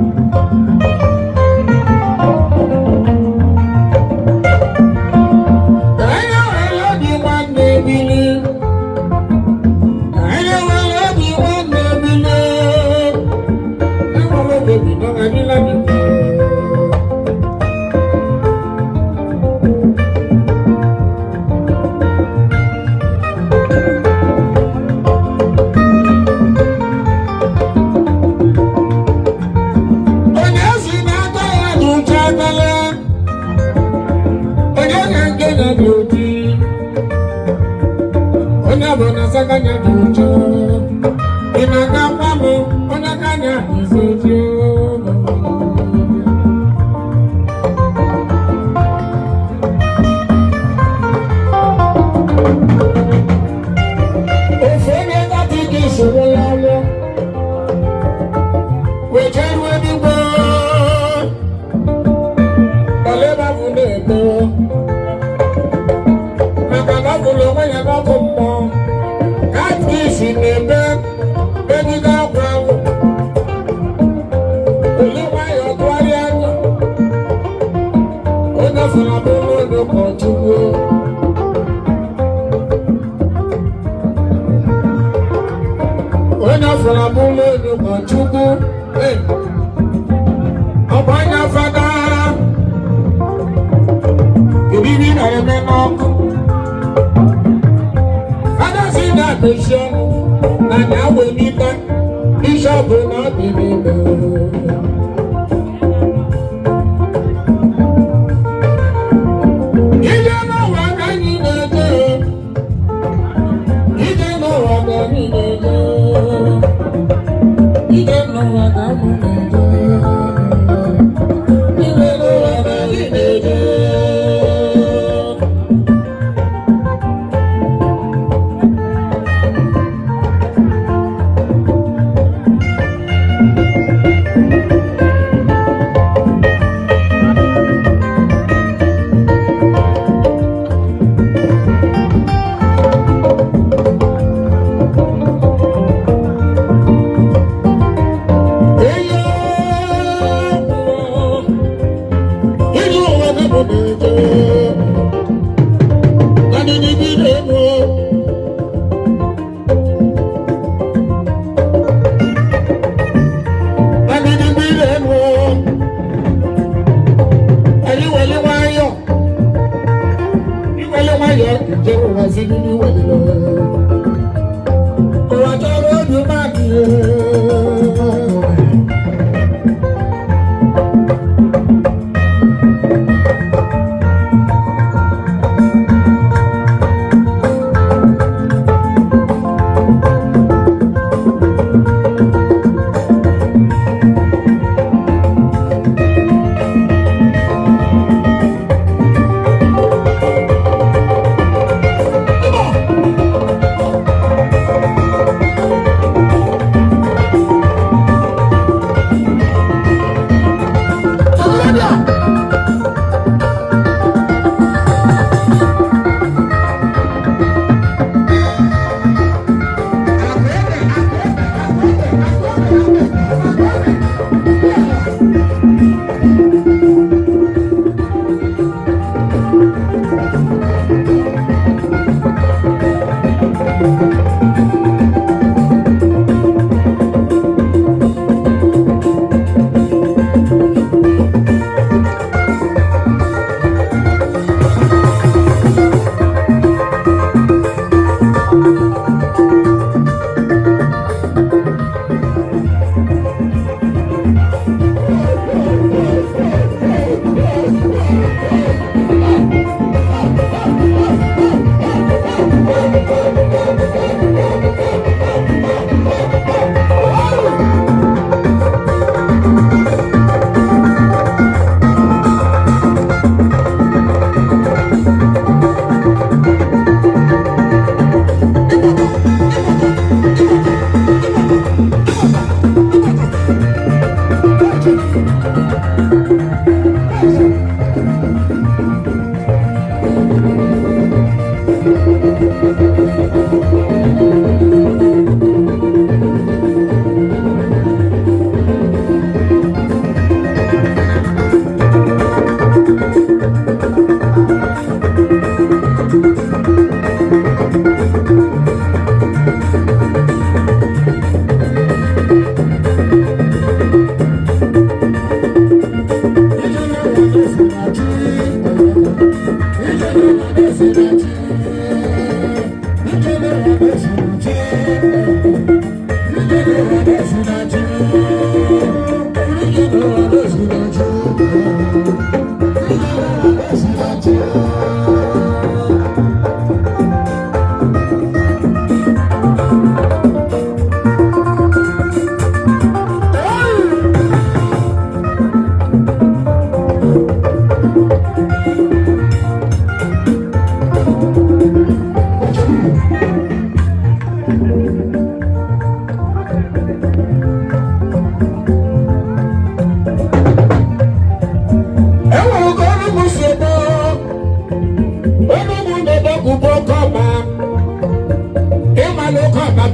Thank you. ọkụ fada si na akpụsi ọnụ na na-awụ jẹ́ òun àti nínú ìwà nínú. ọ̀rọ̀ àjọ ọ̀rọ̀ ọ̀dùn máa dùn.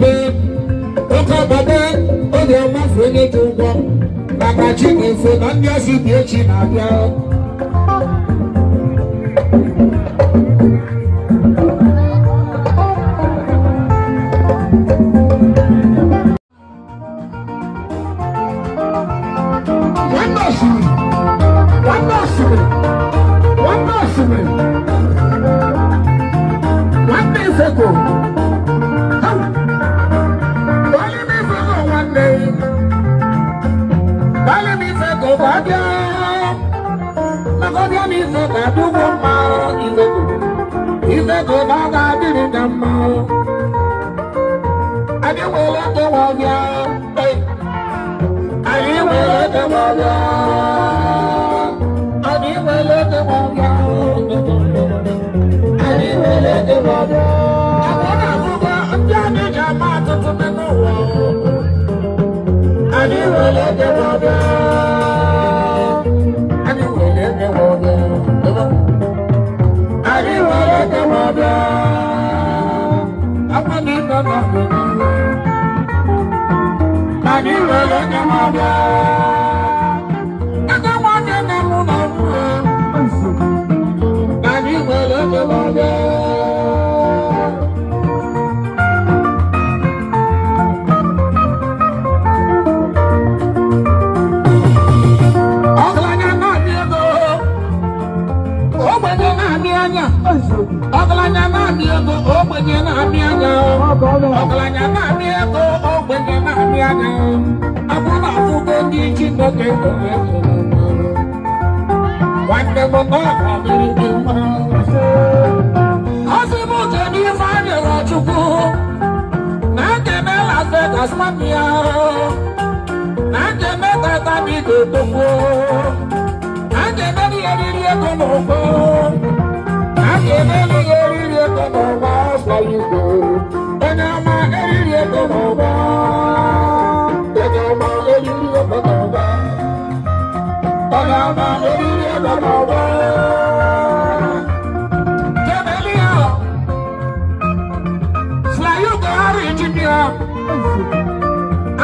babe ụka babe oge mmafe onye dị ụgwọ maka chinefe na ndị ọzọ dị echi na-abịa One man, one one man, one one man, one one man, one Chineke ka ọ ga-adịrị na mma anyị nwere ekewa ọbịa anyị nwere ekewa ọbịa anyị nwere ekewa ọbịa anyị nwere ekewa ọbịa abụọ na abụọ ndị anyị ji ama atụtụ n'ụwa anyị nwere ekewa ọbịa ọgaranya na-amị ego ogbenye na-amị anya ọgaranya na-amị ego ogbenye nri anya abụrụ akwụkwọ ndị Chineke kere ụmụ nwanne m ọ ga-adịrị gị mmanụ bàbá lórí ilé bàbá ọba. Tẹ̀mẹ́líà Sùláyù Buhari Jìbìà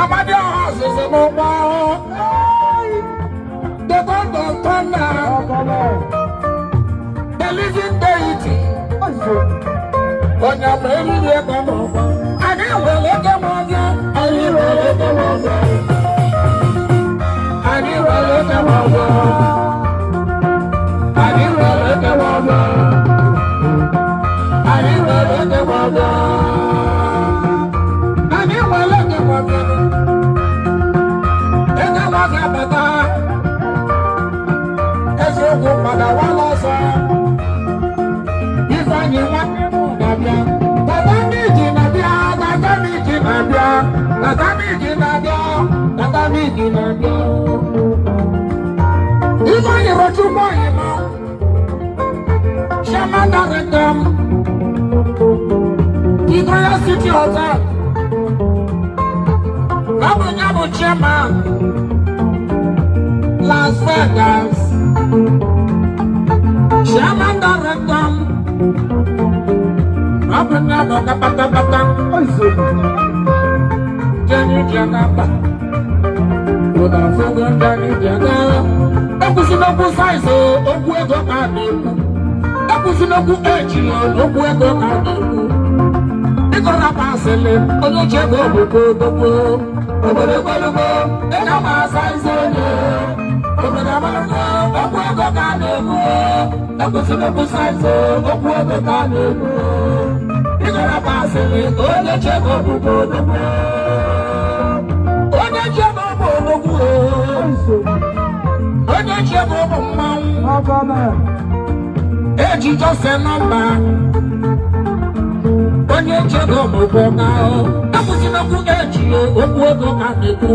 Amadé ọ̀hún ṣẹ̀ṣẹ̀ mọ́ bá ọ́. Dọ́gọ́dọ̀ tọ́lá Bẹ̀lísì Dẹ́yìtì Ọ̀nyàmẹ́lì yẹ bàbá. ọ̀nà wa lọ́sọ̀. Ifeanyi wọn nínú nàbíà. Tata mi jì nàbíà, tata mi jì nàbíà, tata mi jì nàbíà, tata mi jì nàbíà. Ifeanyi rotu mọ ìmọ̀. Ṣé máa dárí dán? Ìgbóyà City Hotel. Lábùjábù chairman. Las Vegas daragam Rabana loga bata bata Oizu Jani jana ba Oda fugu jani jana Okusi nogu saizo Ogu ego ka neku Okusi nogu eji Ogu ego ka neku Ikora basele Onye chego buko buko Obodo golugo Ega ma saizo ne Obodo golugo ga n'egwu ekwesịrị ịkwụsị ife okwu ebe ka n'egwu ịgara m asịrị ka onye chebe obubo onugbu onye chebe ọbụ onugbu onye chebe ọbụ mmanwụ eji jose nọmba onye chebe ọbụbọ na ekwụsịrị okwu eji okwu ego ka n'egwu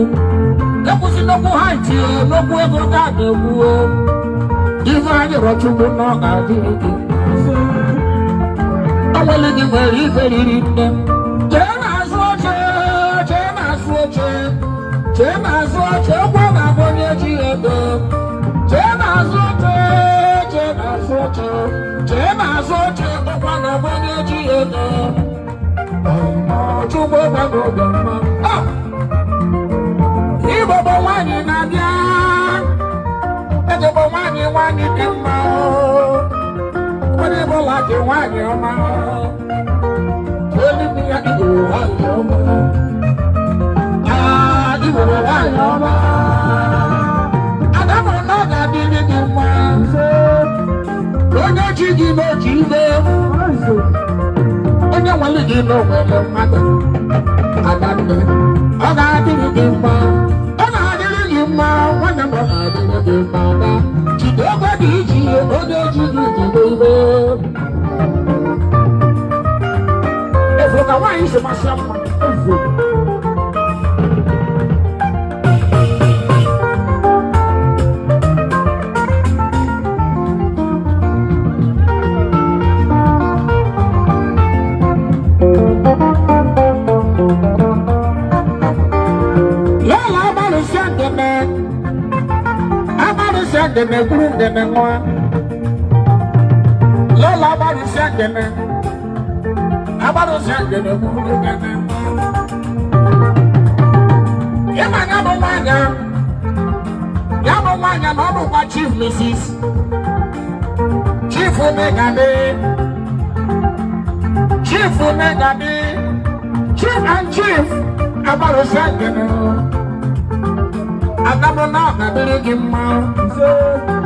ekwụsịrị okwu ha itinye n'okwu ego ka n'egwu Ife anyị rọchugbu n'ọga adịghị. Ọnwele gị nwere ife riri nne. Jee n'azụ oche, jee n'azụ oche, jee n'azụ oche, ụgwọ na-abụ onye ji ego. Jee n'azụ oche, jee n'azụ oche, jee n'azụ oche, ụgwọ na-abụ onye ji ego. Ọchugbu gbagoro mma. bụ nwanyị nwanyị dị mma onye bụla dị nwanyị ọma eluigwe ya igwere nwanyị ọma igwere nwanyị ọma adamụrụ na ọ ga-adị ndị dị mma onye chi gị n'otu ibe onye nwere gị n'onwere mmadụ adanne ọ ga-adịrị gị mma ṣe máa ṣe àpò ẹ̀fọ́. Yẹ́lá abáni sẹ́ndẹ̀mẹ́, abáni sẹ́ndẹ̀mẹ́ kúrú ndẹ̀mẹ́ wọn. Yẹ́lá agbado si agbede kuru kete. Ịma ya bụ nwaanyị ya bụ nwaanyị na ọ bụkwa chief Mrs. chief Megade chief Megade chief and chief agbado si agbede. Adamu na ọ ga-adịrị gị mma.